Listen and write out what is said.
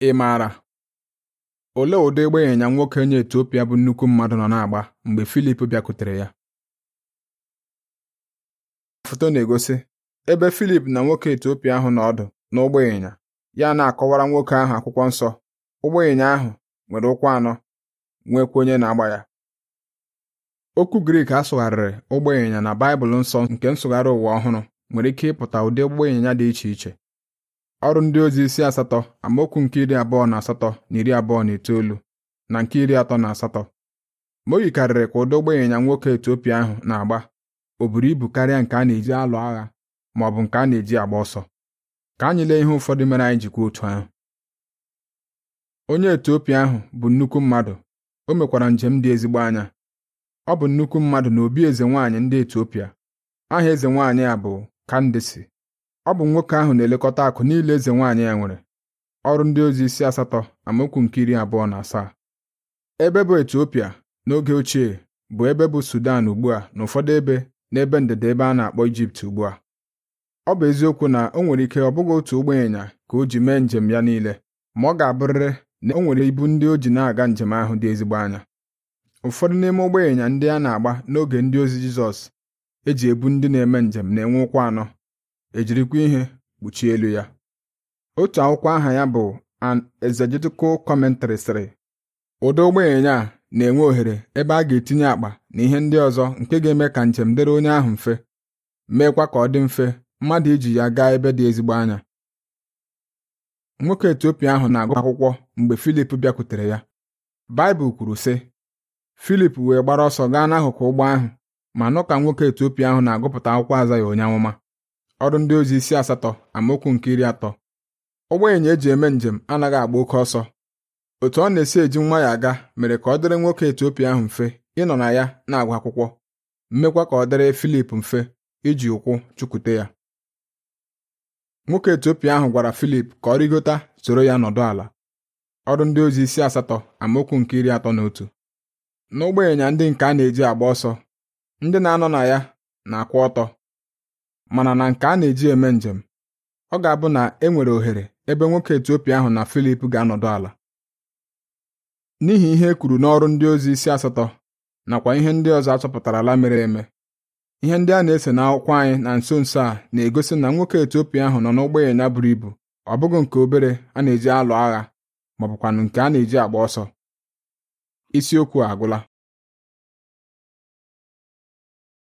Ị maara olee ụdị ịgba ịnyịnya nwoke onye Etiopia bụ nnukwu mmadụ nọ na-agba mgbe Filip bịakwutere ya? Foto na-egosi ebe Filip na nwoke Etiopia ahụ nọ ọdụ n'ụgbọ ịnyịnya ya na-akọwara nwoke ahụ akwụkwọ nsọ. Ụgbọ ịnyịnya ahụ nwere ụkwụ anọ, nwekwa onye na-agba ya. Okwu Grik a sụgharịrị ụgbọ ịnyịnya na Baịbụl Nsọ nke Nsụgharị Ụwa Ọhụrụ nwere ike ịpụta ụdị ụgbọ ịnyịnya dị iche iche ọrụ ndị ozi isi asatọ amaokwu nke iri abụọ na asatọ na iri abụọ na itoolu na nke iri atọ na asatọ ma o yikarịrị ka ụdị ụgbọ ịnyịnya nwoke Etiopia ahụ na-agba o buru ibu karịa nke a na-eji alụ agha ma ọ bụ nke a na-eji agba ọsọ ka anyị lee ihe ụfọdụ mere anyị jikwa otu ahụ onye Etiopia ahụ bụ nnukwu mmadụ o mekwara njem dị ezigbo anya ọ bụ nnukwu mmadụ na obi eze nwaanyị ndị Etiopia aha eze nwaanyị a bụ Kandisi ọ bụ nwoke ahụ na-elekọta akụ niile eze nwaanyị ya nwere ọrụ ndị ozi isi asatọ amaokwu nke iri abụọ na asaa ebe bụ Etiopia n'oge ochie bụ ebe bụ Sudan ugbu a na ụfọdụ ebe n'ebe ndịda ebe a na-akpọ Ijipt ugbu a ọ bụ eziokwu na o nwere ike ọ bụghị otu ụgbọ ịnyịnya ka o ji mee njem ya niile ma ọ ga-abụrịrị na o nwere ibu ndị o ji na-aga njem ahụ dị ezigbo anya ụfọdụ n'ime ụgbọ ịnyịnya ndị a na-agba n'oge ndị ozi Jizọs eji ebu ndị na-eme njem na-enwe ụkwụ anọ ejirikwa ihe kpuchie elu ya otu akwụkwọ aha ya bụ an exegetical commentary sịrị ụdọ ụgbọịnyịnya a na-enwe ohere ebe a ga-etinye akpa na ihe ndị ọzọ nke ga-eme ka njem dịrị onye ahụ mfe meekwa ka ọ dị mfe mmadụ iji ya gaa ebe dị ezigbo anya nwoke Etiopia ahụ na-agụ akwụkwọ mgbe Filip bịakwutere ya Baịbụl kwuru sị Filip wee gbara ọsọ gaa n'akụkụ ụgbọ ahụ ma nụ ka nwoke Etiopia ahụ na-agụpụta akwụkwọ aza ya onye amụma ọrụ ndị ozi isi asatọ amaokwu nke iri atọ ụgbọịnyịnya eji eme njem anaghị agba oke ọsọ otu ọ na-esi eji nwa ya aga mere ka ọ dịrị nwoke Etiopia ahụ mfe ịnọ na ya na agwa akwụkwọ mmekwa ka ọ dịrị Filip mfe iji ụkwụ chukwute ya nwoke Etiopia ahụ gwara Filip ka ọ rịgota soro ya nọdụ ala ọrụ ndị ozi isi asatọ amaokwu nke iri atọ na otu n'ụgbọịnyịnya ndị nke a na-eji agba ọsọ ndị na-anọ na ya na-akwụ ọtọ mana na nke a na-eji eme njem ọ ga-abụ na e nwere ohere ebe nwoke Etiopia ahụ na Filip ga-anọdụ ala n'ihi ihe e kwuru n'ọrụ ndị ozi isi asatọ nakwa ihe ndị ọzọ achọpụtala mere eme ihe ndị a na-ese n'akwụkwọ anyị na nso nso a na-egosi na nwoke Etiopia ahụ nọ n'ụgbọ ịnyịnya buru ibu ọ bụghị nke obere a na-eji alụ agha ma nke a na-eji agba ọsọ isiokwu agwụla